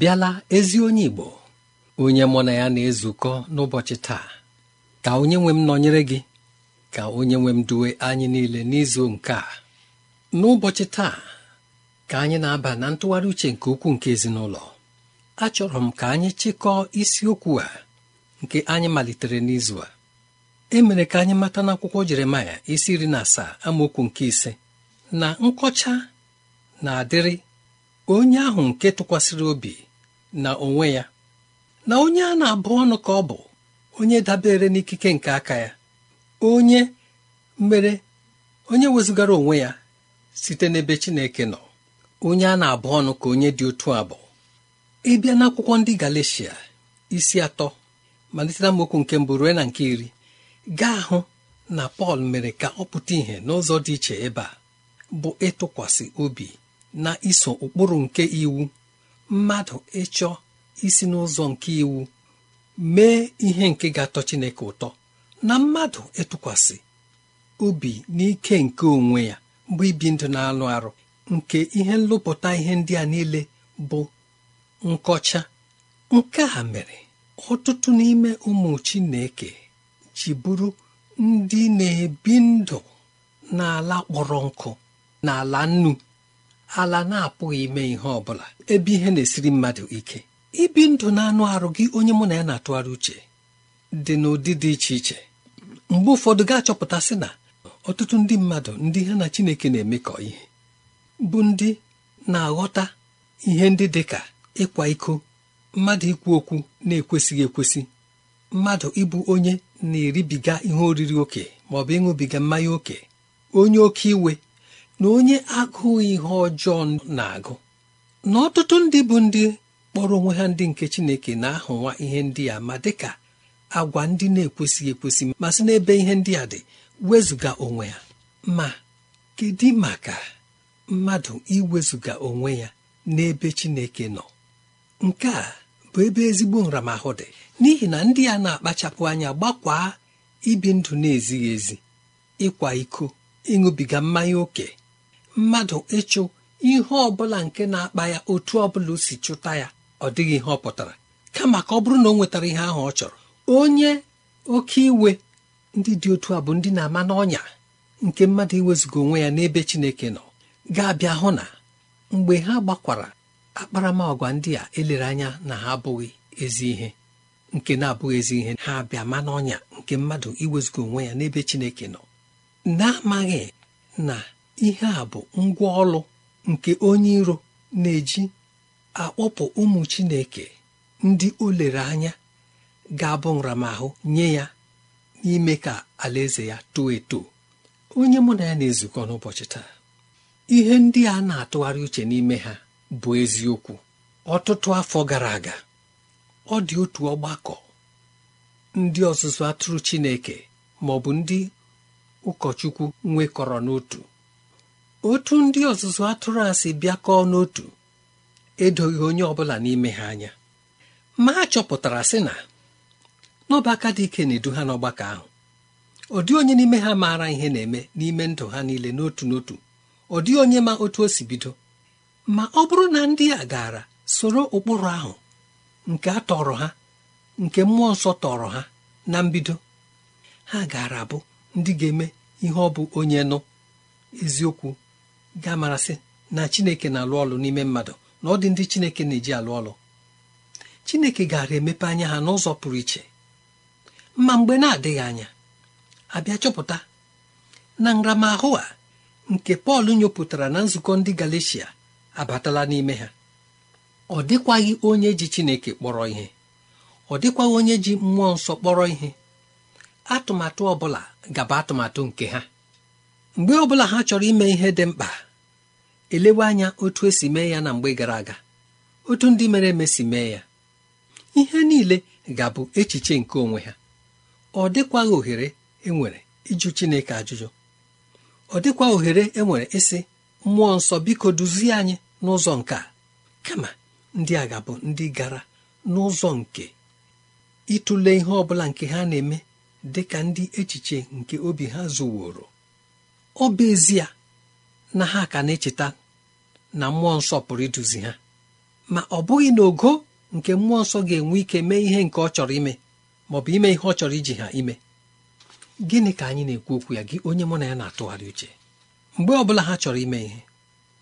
abịala ezi onye Igbo onye mụ na ya na-ezukọ n'ụbọchị taa ka onye nwe m nọnyere gị ka onye nwe m duwe anyị niile n'izu nke a n'ụbọchị taa ka anyị na-aba na ntụgharị uche nke ukwuu nke ezinụlọ achọrọ m ka anyị chịkọọ isiokwu a nke anyị malitere n'izu a Emere ka anyị mata n'akwụkwọ Jeremaya isi iri na asaa amaokwu nke ise na nkọcha na-adịrị onye ahụ nke tụkwasịrị obi na onwe ya na onye a na-abụ ọnụ ka ọ bụ onye dabere n'ikike nke aka ya onye mere onye wezụgara onwe ya site n'ebe Chineke nọ onye a na-abụ ọnụ ka onye dị otu abụ ịbịa n'akwụkwọ ndị Galeshia isi atọ malite amaokwu nke mbụ ruo na nke iri gaa hụ na Pọl mere ka ọ pụta ìhè n'ụzọ dị iche ebe a bụ ịtụkwasị obi na iso ụkpụrụ nke iwu mmadụ ịchọ isi n'ụzọ nke iwu mee ihe nke ga-atọ Chineke ụtọ na mmadụ ịtụkwasị obi n'ike nke onwe ya bụ ibi ndụ na-alụ arụ nke ihe nlụpụta ihe ndị a niile bụ nkọcha nke a mere ọtụtụ n'ime ụmụ Chineke ji bụrụ ndị na-ebi ndụ n'ala kpọrọ nkụ n'ala nnu ala na-apụghị ime ihe ọ bụla ebe ihe na-esiri mmadụ ike ibi ndụ na-anụ arụ gị onye mụ na ya na-atụgharị uche dị n'ụdị dị iche iche mgbe ụfọdụ ga-achọpụta sị na ọtụtụ ndị mmadụ ndị ha na Chineke na-emekọ ihe bụ ndị na-aghọta ihe ndị dị ka ịkwa iko mmadụ ikwu okwu na-ekwesịghị ekwesị mmadụ ịbụ onye na-eribiga ihe oriri oke ma ọ bụ ịṅụbiga mmanya oke onye oke iwe na onye agụụ ihe ọjọọ na-agụ na ọtụtụ ndị bụ ndị kpọrọ onwe ha ndị nke chineke na-ahụnwa ihe ndị a ma dịka agwa ndị na-ekwesịghị ekwesị ma sị n'ebe ihe ndị a dị wezụga onwe ya ma kedu maka mmadụ iwezụga onwe ya n'ebe chineke nọ nke a bụ ebe ezigbo nramahụ dị n'ihi na ndị a na-akpachapụ anya gbakwaa ibi ndụ na-ezighị ezi ịkwa iko ịṅụbiga mmanya ókè mmadụ ịchụ ihe ọbụla nke na-akpa ya otu ọbụla si chụta ya ọ dịghị ihe ọ pụtara kama ka ọ bụrụ na ọ nwetara ihe ahụ ọ chọrọ onye oke iwe ndị dị otu a bụ ndị na-ama n'ọnya nke mmadụ iwezụga onwe ya n'ebe Chineke nọ ga-abịa hụ na mgbe ha gbakwara akparamagwa ndị a elere anya na ha abụghị ezi ihe nke na-abụghị ezi ihe ha abịa ma n'ọnya nke mmadụ iwezụga onwe ya n'ebe Chineke nọ na-amaghị na ihe a bụ ngwa ọlụ nke onye iro na-eji akpọpụ ụmụ Chineke ndị o lere anya ga-abụ nramahụ nye ya n'ime ka alaeze ya too eto onye mụ na ya na-ezukọ n'ụbọchị taa ihe ndị a na-atụgharị uche n'ime ha bụ eziokwu ọtụtụ afọ gara aga ọ dị otu ọgbakọ ndị ọzụzụ atụrụ Chineke ma ọ bụ ndị ụkọchukwu nwekọrọ n'otu otu ndị ọzụzụ atụrụ a si bịakọọ n'otu edoghị onye ọbụla n'ime ha anya ma a chọpụtara sị na n'ọbaka dị ike na-edu ha n'ọgbakọ ahụ ọ onye n'ime ha maara ihe na-eme n'ime ndụ ha niile n'otu n'otu ọ dịghị onye ma otu o si bido ma ọ bụrụ na ndị a gara soro ụkpụrụ ahụ nke a tọrọ ha nke mmụọ nsọ tọrọ ha na mbido ha gaara abụ ndị ga-eme ihe ọ bụ onye nụ eziokwu ga-amarasị na chineke na-alụ ọlụ n'ime mmadụ na ọ dị ndị chineke na-eji alụ ọlụ chineke gara emepe anya ha n'ụzọ pụrụ iche ma mgbe na-adịghị anya abịa chọpụta na nramahụ a nke pọl nyopụtara na nzukọ ndị galeshia abatala n'ime ha ọ dịkwaghị onye ji chineke kpọrọ ihe ọ dịkwaghị onye ji mmụọ nsọ kpọrọ ihe atụmatụ ọ bụla gaba atụmatụ nke ha mgbe ọ bụla ha chọrọ ime ihe dị mkpa elewe anya otu esi mee ya na mgbe gara aga otu ndị mere eme si mee ya ihe niile ga-abụ echiche nke onwe ha ọ dịkwaghị ohere enwere ịjụ Chineke ajụjụ ọ dịkwa ohere enwere ịsị mmụọ nsọ biko duzie anyị n'ụzọ nke kama ndị a ga-abụ ndị gara n'ụzọ nke ịtụle ihe ọ nke ha na-eme dị ka ndị echiche nke obi ha zuworo ọ bụ ezie na ha ka na-echeta na mmụọ nsọ pụrụ iduzi ha ma ọ bụghị na ogo nke mmụọ nsọ ga-enwe ike mee ihe nke ọ chọrọ ime ma ọ bụ ime ihe ọ chọrọ iji ha ime gịnị ka anyị na-ekwu okwu ya gị onye mụ na ya na-atụgharị uche mgbe ọ bụla ha chọrọ ime ihe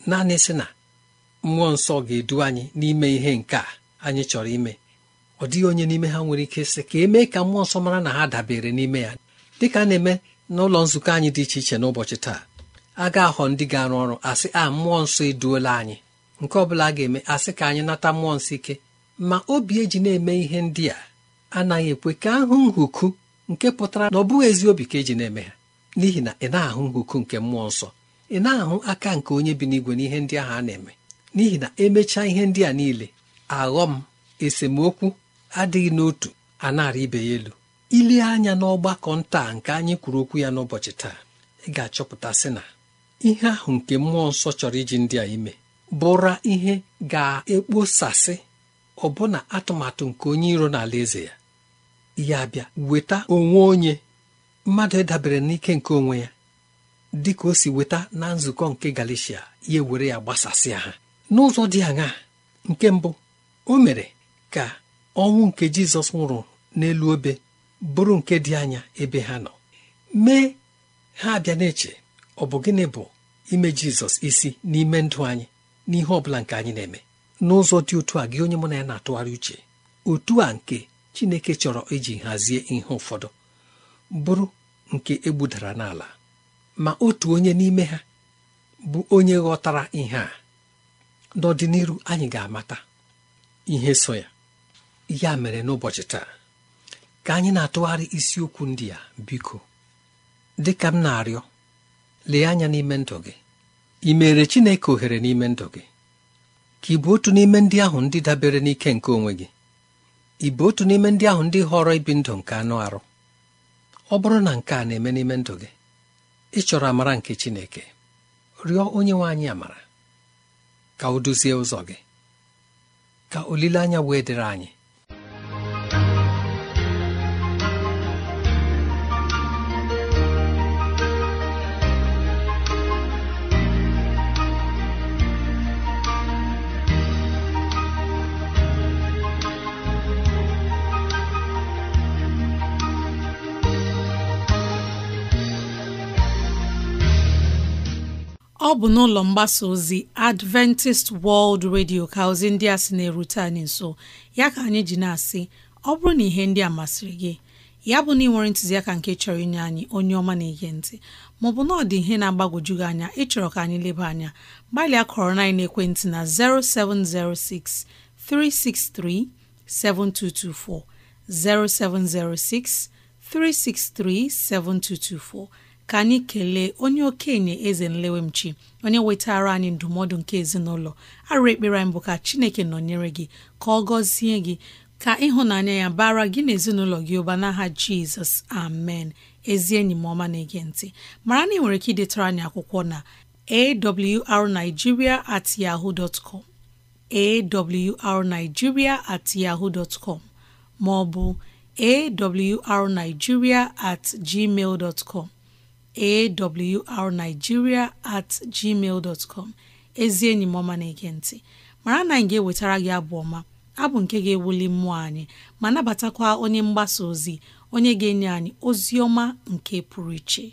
naanị sị na mmụọ nsọ ga-edu anyị n'ime ihe nke a anyị chọrọ ime ọ dịghị onye n'ime ha nwere ike sị ka emee ka mmụọ nsọ mara na ha dabere n'ime ya dịka a na-eme n'ụlọ nzukọ anyị dị iche iche n'ụbọchị taa a ga-ahọ ndị ga-arụ ọrụ asị a mmụọ nsọ eduola anyị nke ọ bụla a ga-eme asị ka anyị nata mmụọ nsọ ike ma obi eji na-eme ihe ndị a anaghị ekwe ka ahụ nhuku nke pụtara na ọ bụghị ezi obi ka eji na-eme ha n'ihi na ị na-ahụ nhuku nke mmụọ nsọ ị na-ahụ aka nke onye bi n'igwe n'ihe ndị ahụ a na-eme n'ihi na emechaa ihe ndị a niile aghọm esemokwu adịghị n'otu a na ibe ya elu ilee anya n'ọgbakọ nta nke anyị kwuru okwu ya n'ụbọchị taa ị ga-achọpụta sị na ihe ahụ nke mmụọ nsọ chọrọ iji ndị a ime bụra ihe ga-ekposasị ọbụna atụmatụ nke onye iro n'ala eze ya ya bịa weta onwe onye mmadụ ịdabere n'ike nke onwe ya dị ka o si weta na nzukọ nke galicia ya ewere ya gbasasịa ha n'ụzọ dị aṅaa nke mbụ o mere ka ọnwụ nke Jizọs nwụrụ n'elu obe bụrụ nke dị anya ebe ha nọ mee ha abịa na-eche ọ bụ gịnị bụ ime jizọs isi n'ime ndụ anyị n'ihe ọ bụla nke anyị na-eme n'ụzọ dị otu a gị onye mụ na ya na-atụgharị uche otu a nke chineke chọrọ iji hazie ihe ụfọdụ bụrụ nke egbudara n'ala ma otu onye n'ime ha bụ onye ghọtara ihe a n'ọdịnihu anyị ga-amata ihe so ya ya mere n'ụbọchị taa ka anyị na-atụgharị isiokwu ndị a biko dị ka m na-arịọ lee anya n'ime ndụ gị ị mere Chineke ohere n'ime ndụ gị ka ị bụ otu n'ime ndị ahụ ndị dabere n'ike nke onwe gị ị bụ otu n'ime ndị ahụ ndị họrọ ibi ndụ nke anụ arụ ọ bụrụ na nke a na-eme n'ime ndụ gị ị chọrọ amara nke Chineke rịọ onye nwe anyị amara ka o duzie ụzọ gị ka olileanya wee dịrị anyị ọ bụ n'ụlọ mgbasa ozi Adventist World Radio ka ozi ndị a sị na-erute anyị nso ya ka anyị ji na-asị ọ bụrụ na ihe ndị a masịrị gị ya bụ na ị nwere ntụziaka nke chọrọ inye anyị onye ọma na-ege ntị maọbụ na ọ dị ihe na-agbagwoju gị anya ịchọrọ ka anyị leba anya gbalịa kọrọ na ekwentị na 0706 363 7224 0706 363 7224 ka anyị kelee onye okenye eze nlewemchi onye wetara anyị ndụmọdụ nke ezinụlọ arụ ekpere anyị bụ ka chineke nọnyere gị ka ọ gọzie gị ka ịhụnanya ya bara gị na ezinụlọ gị ụba n'aha jizọs amen ezi enyi m ọma na-ege ntị mara na ị nwere ike idetara anyị akwụkwọ na arigiria at yahoo dot arigiria at yahoo dot maọbụ ma ọ bụ awrnigeria at gmail dot com awrnigeria at gmail dot ezi enyi m ọma na-ege mara na anyị ga-ewetara gị abụ ọma abụ nke ga-ewuli mmụọ anyị ma nabatakwa onye mgbasa ozi onye ga-enye anyị ozi ọma nke pụrụ iche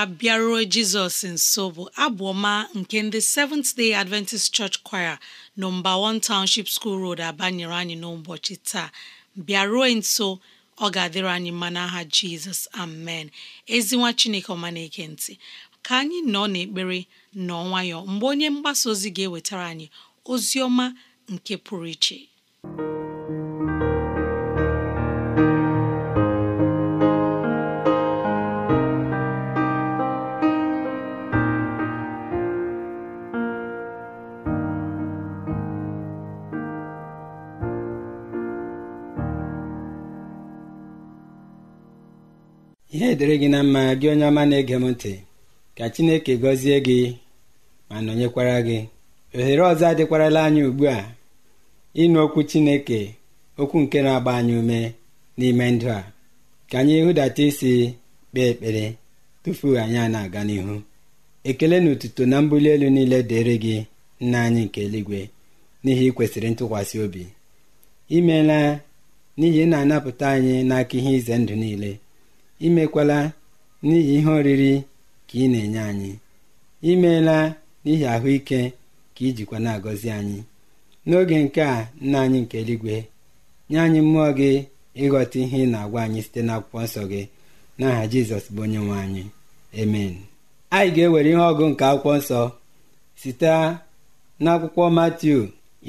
a bịaruo jizọs nso bụ abụ ọma nke ndị Seventh Day Adventist Church Choir nọmba 1 Township School Road abanyere anyị n'ụbọchị taa bịaruo nso ọ ga-adịrị anyị mma n'aha jizọs amen ezinwa chineke ọma na-ege ka anyị nọ n'ekpere nọ nwayọọ mgbe onye mgbasa ozi ga-ewetara anyị ozi ọma nke pụrụ iche ihe dịrị gị na mma gị onye ọma na-ege m ntị ka chineke gọzie gị ma nọnyekwara gị ohere ọzọ adịkwarala anyị ugbu a ịnụ okwu chineke okwu nke na-agba anyị ume n'ime ndụ a ka anyị hụdata isi kpee ekpere tufu anyị a na-aga n'ihu ekele na otuto na mbuli elu niile dịrị gị nna anyị nke eluigwe n'ihi ịkwesịrị ntụkwasị obi imeela n'ihi ị na-anapụta anyị n'aka ihe ize ndụ niile imekwala n'ihi ihe oriri ka ị na-enye anyị imeela n'ihi ahụike ka ijikwa na-agọzi anyị n'oge nke a nna anyị nke eluigwe nye anyị mmụọ gị ịghọta ihe ị na-agwa anyị site n'akwụkwọ nsọ gị n'aha jizọs bụ onye nwe anyị emen anyị ga-ewere ihe ọgụ nke akwụkwọ nsọ site n'akwụkwọ matiu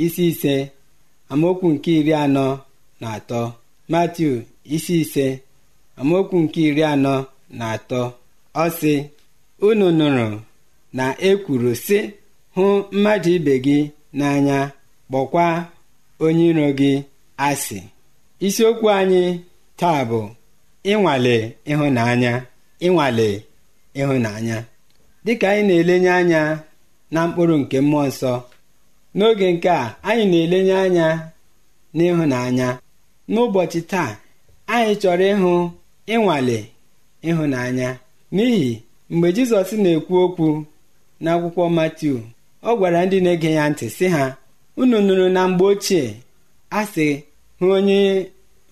isi ise amaokwu nke iri anọ na atọ matiu isi ise amaokwu nke iri anọ na atọ ọ sị unu nụrụ na ekwuru sị hụ mmadụ ibe gị n'anya kpọkwa onye iro gị asị isiokwu anyị taa bụ ịnwale ịhụnanya ịnwale ịhụnanya dịka anyị na-elenye anya na mkpụrụ nke mmụọ nsọ n'oge nke a anyị na-elenye anya n'ịhụnanya n'ụbọchị taa anyị chọrọ ịhụ ịnwale ịhụnanya n'ihi mgbe Jizọs na-ekwu okwu n'akwụkwọ Matiu ọ gwara ndị na-ege ya ntị sị ha unu nụrụ na mgbe ochie a sị hụ onye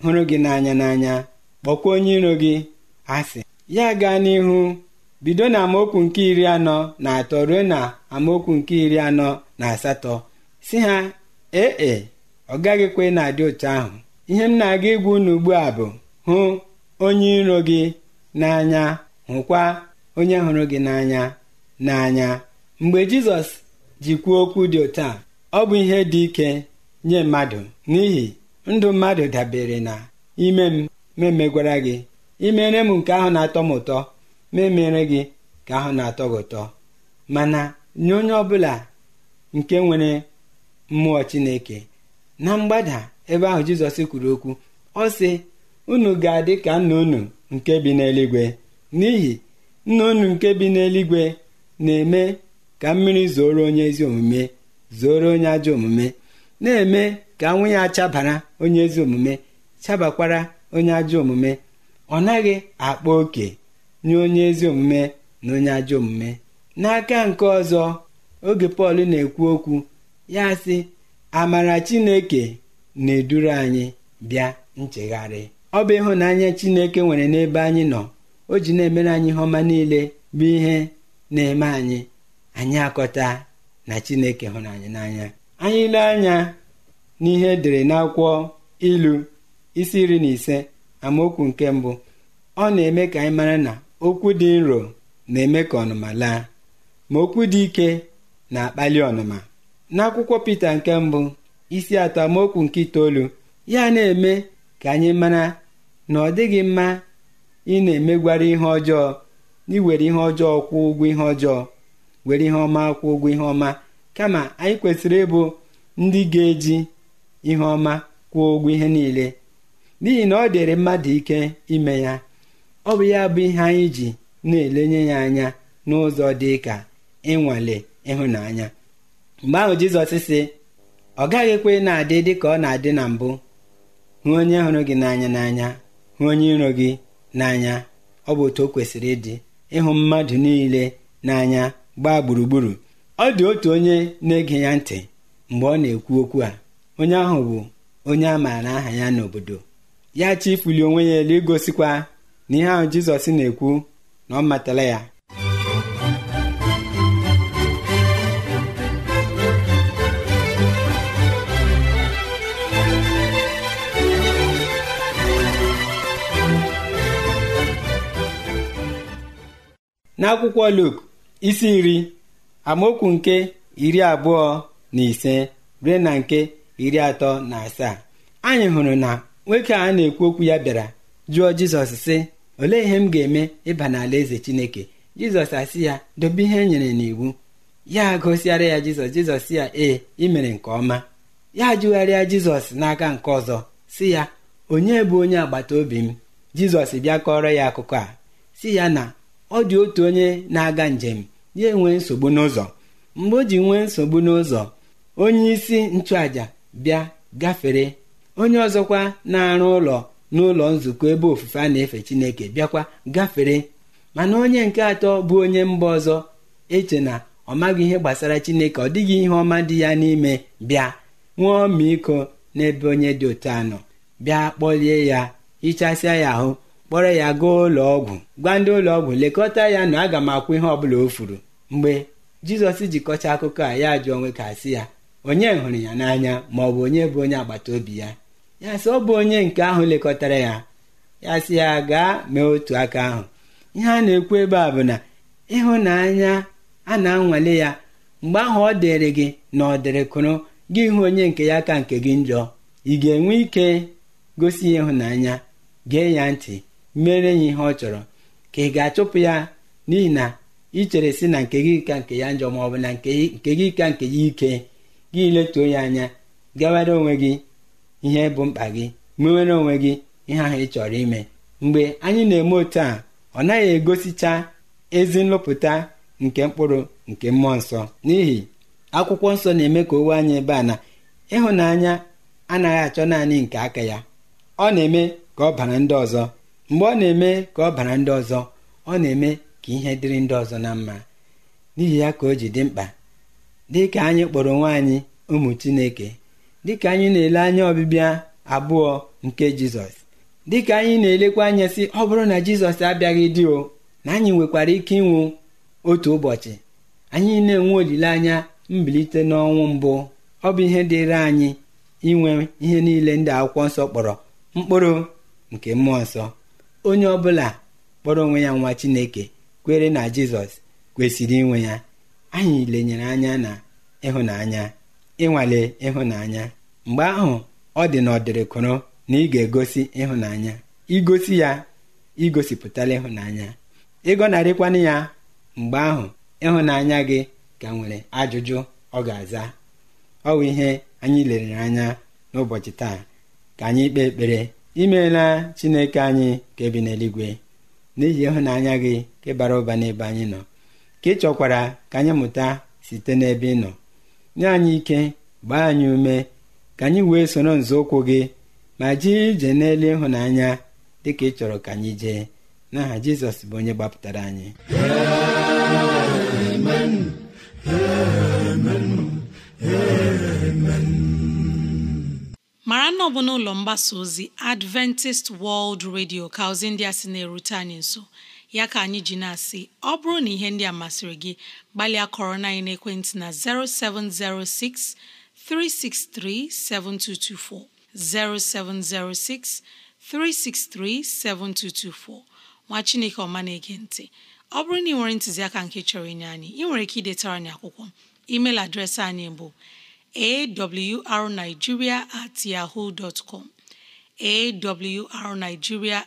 hụrụ gị n'anya n'anya kpọkwa onye iro gị asị ya gaa n'ihu bido na amaokwu nke iri anọ na atọ ruo na amaokwu nke iri anọ na asatọ si ha ee e, ọ gaghịkwa na-adị otu ahụ ihe m na-aga igwu unu ugbu a bụ hụ onye iro gị n'anya hụkwa onye hụrụ gị n'anya n'anya mgbe jizọs ji kwuo okwu dị otu a ọ bụ ihe dị ike nye mmadụ n'ihi ndụ mmadụ dabere na ime m memegwara gị imere m nke ahụ na-atọ m ụtọ memere gị ka ahụ na-atọ gị ụtọ mana nye onye ọbụla nke nwere mmụọ chineke na mgbada ebe ahụ jizọs kwuru okwu ọ sị unu ga-adị ka nna unu nke bi n'eluigwe n'ihi nna unu nke bi n'eluigwe na-eme ka mmiri zoro onye ezi omume zoro onye ajọ omume na-eme ka nwunye ya onye ezi omume chabakwara onye ajọ omume ọ naghị akpa oke nye onye ezi omume na onye ajọ omume n'aka nke ọzọ oge Pọl na-ekwu okwu ya sị amara Chineke na-eduru anyị bịa nchegharị ọ bụ ịhụnanya Chineke nwere n'ebe anyị nọ o ji na-emere anyị ihe ọma niile bụ ihe na-eme anyị anyị akọta na Chineke hụrụ anyị n'anya anyị ile anya n'ihe edere n'akwụkwọ ilu isi iri na ise amaokwu nke mbụ ọ na-eme ka anyị mara na okwu dị nro na-eme ka ọnụma laa ma okwu dị ike na-akpali ọnụma n'akwụkwọ Pita nke mbụ isi atọ amaokwu nke itoolu ya na-eme ka anyị mara na ọ dịghị mma ị na-emegwara ihe ọjọọ iwere ihe ọjọọ kwụ ụgwọ ihe ọjọọ were ihe ọma kwụ ụgwọ ihe ọma kama anyị kwesịrị ịbụ ndị ga-eji ihe ọma kwụọ ụgwọ ihe niile n'ihi na ọ dịrị mmadụ ike ime ya ọ bụ ya bụ ihe anyị ji na-elenye ya anya n'ụzọ dị ka ịnwale ịhụnanya mgbe ahụ jizọs sị ọ gaghị ekwe na-adị dị ka ọ na-adị na mbụ hụ onye hụrụ gị n'anya n'anya hụ onye iro gị n'anya ọ bụ otu o kwesịrị ịdị ịhụ mmadụ niile n'anya gbaa gburugburu ọ dị otu onye na-ege ya ntị mgbe ọ na-ekwu okwu a onye ahụ bụ onye a maara aha ya n'obodo ya chifuli onwe ya elu igosikwa na ihe ahụ jizọs na-ekwu na ọ matala ya n'akwụkwọ Luk isi nri amaokwu nke iri abụọ na ise ruo na nke iri atọ na asaa anyị hụrụ na nwoke a na-ekwu okwu ya bịara jụọ Jizọs sị olee ihe m ga-eme ịba n'ala eze Chineke Jizọs asị ya dobe ihe e nyere n'iwu ya gosiara ya Jizọs Jizọs ya ee imere nke ọma ya jụgharịa Jizọs n'aka nke ọzọ si ya onye bụ onye agbata obi m Jizọs bịa kọrọ ya akụkọ a si ya na ọ dị otu onye na-aga njem ya enwee nsogbu n'ụzọ mgbe o ji nwee nsogbu n'ụzọ onye isi nchụaja bịa gafere onye ọzọkwa na-arụ ụlọ n'ụlọ nzukọ ebe ofufe a na-efe chineke bịakwa gafere mana onye nke atọ bụ onye mba ọzọ eche na ọ maghị ihe gbasara chineke ọ dịghị ihe ọma dị ya n'ime bịa nwụọ ọmịiko n'ebe onye dị otu anọ bịa kpọlie ya hichasịa ya ahụ kpọrọ ya gaa ụlọ ọgwụ gwa ndị ụlọ ọgwụ lekọta ya na aga m akwụ ihe ọbụla o furu mgbe jizọs jikọcha akụkọ a ya jụọ onwe ka asị ya onye hụrụ ya n'anya ma ọ bụ onye bụ onye agbata obi ya ya sị ọ bụ onye nke ahụ lekọtara ya ya sị ya gaa mee otu aka ahụ ihe a na-ekwu ebe a bụ na ịhụnanya a na-anwale ya mgbe ahụ ọ dịrị gị na ọ dịrịkụrụ gị hụ onye nke ya ka nke gị njọ ị ga-enwe ike gosi ya ịhụnanya gee ya ntị mere ya ihe ọ chọrọ ka ị ga-achụpụ ya n'ihi na ị chere si na nke gị ka nke ya njọ ma ọ bụ na nke gị ka nke ya ike gị letuo ya anya gawara onwe gị ihe bụ mkpa gị mewere onwe gị ihe ahụ ị chọrọ ime mgbe anyị na-eme otu a ọ naghị egosicha ezi nlụpụta nke mkpụrụ nke mmụọ nsọ n'ihi akwụkwọ nsọ na-eme ka owe anyị ebe a na ịhụnanya anaghị achọ naanị nke aka ya ọ na-eme ka ọ bara ndị ọzọ mgbe ọ na-eme ka ọ bara ndị ọzọ ọ na-eme ka ihe dịrị ndị ọzọ na mma n'ihi ya ka o ji dị mkpa dị ka anyị kpọrọ onwe anyị ụmụ chineke dịka anyị na-ele anya ọbịbịa abụọ nke jizọs ka anyị na-elekwa anya sị ọ bụrụ na jizọs abịaghị dị o na anyị nwekwara ike ịnwụ otu ụbọchị anyị na-enwe olileanya mbilite n'ọnwụ mbụ ọ bụ ihe dịịrị anyị inwe ihe niile ndị akwụkwọ nsọ kpọrọ mkpụrụ nke mmụọ nsọ onye ọbụla kpọrọ onwe ya nwa chineke kwere na jizọs kwesịrị inwe ya anyị lenyere anya na ịhụnanya ịnwale ịhụnanya mgbe ahụ ọ dị na ọdịrịkụrụ na ị ga-egosi ịhụnanya igosi ya igosipụtala ịhụnanya ịgọnarịkwana ya mgbe ahụ ịhụnanya gị ka nwere ajụjụ ọ ga-aza ọ bụ ihe anyị lere anya n'ụbọchị taa ka anyị kpee ekpere imeela chineke anyị ka ebi n'eluigwe n'ihi ịhụnanya gị ka bara ụba n'ebe anyị nọ ka ị chọkwara ka anyị mụta site n'ebe ị nọ nye anyị ike gbaa anyị ume ka anyị wee soro nzọụkwụ gị ma jee ije n'elu ịhụnanya dị ka ị chọrọ ka anyị jee n'aha jizọs bụ onye gbapụtara anyị mara na ọ bụ n'ụlọ mgbasa ozi adventist world radio ka ozi ndị a sị na-erute anyị nso ya ka anyị ji na-asị ọ bụrụ na ihe ndị a masịrị gị gbalịa kọrọ na anyị n'ekwentị na 0706 363 7224 0706 363 7224 nwa chineke ọma na-ege ntị ọ bụrụ na ị nwere ntụziaka nke chọrọ inye anyị ị nwere ike idetara anyị akwụkwọ emeil adreesị anyị bụ awrnigeria at yahoo dot com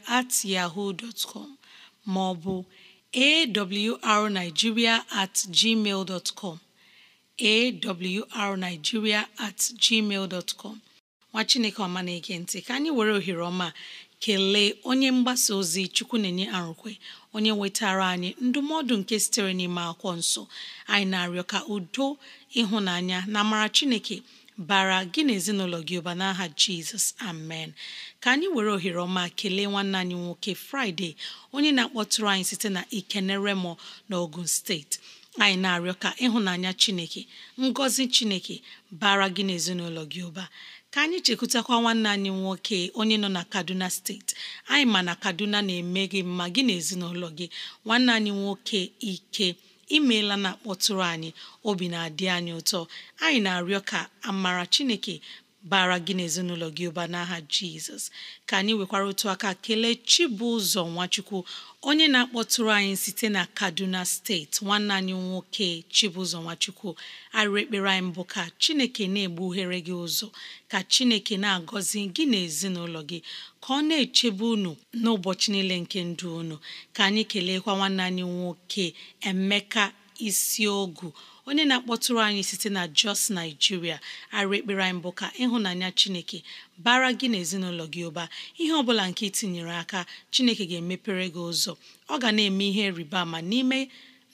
at yahoo dot com ma ọ bụ awrnigeria at gmail dot com awrnigeria at gmail dot nwa chineke ọma na ntị ka anyị were ohere ọma kelee onye mgbasa ozi chukwu na-enye arụkwe onye nwetara anyị ndụmọdụ nke sitere n'ime akwụkwọ nso anyị na-arịọ ka udo ịhụnanya na amara chineke bara gị na ezinụlọ gị ụba n'aha jizọs amen ka anyị were ohere ọma kelee nwanne anyị nwoke fraịde onye na-akpọtụrụ anyị site na ikeneremo na ogun steeti anyị na-arịọ ka ịhụnanya chineke ngọzi chineke bara gị na ezinụlọ gị ụba ka anyị chekwutakwa nwanne anyị nwoke onye nọ na kaduna steeti anyị ma na kaduna na-eme gị mma gị na ezinụlọ gị nwanne anyị nwoke ike imeela na akpọtụrụ anyị obi na-adị anyị ụtọ anyị na-arịọ ka amara chineke bara gị n'ezinụlọ gị ụba n'aha jizọs ka anyị nwekwara otu aka kelee chibụzọ nwachukwu onye na-akpọtụrụ anyị site na kaduna steeti nwanne anyị nwoke chibụzọ nwachukwu arịrị ekpere anyị mbụ ka chineke na-egbughere gị ụzọ ka chineke na-agọzi gị na gị ka ọ na-echebe unu n'ụbọchị niile nke ndụ unu ka anyị keleekwa nwanne anyị nwoke Emeka ogu onye na-akpọtụrụ anyị site na Jos naijiria arụ ekpere anyị bụ ka ịhụnanya Chineke bara gị na ezinụlọ gị ụba ihe ọbụla nke itinyere aka Chineke ga-emepere gị ụzọ ọ ga na-eme ihe rịba ama n'ime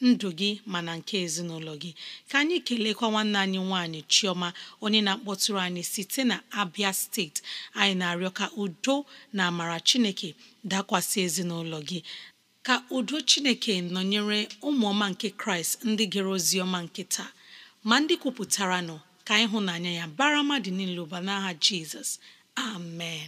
ndụ gị mana nke ezinụlọ gị ka anyị kelekwa nwanne anyị nwaanyị Chioma onye na-akpọtụrụ anyị site na Abia steeti anyị na-arịọ ka udo na amara Chineke dakwasị ezinụlọ gị ka udo Chineke nọnyere ụmụọma nke Kraịst ndị gere ozi ọma nke ma ndị kwupụtara nọ ka ịhụnanya ya bara mmadụ niile ụba n'agha Jizọs amen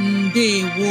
ndewo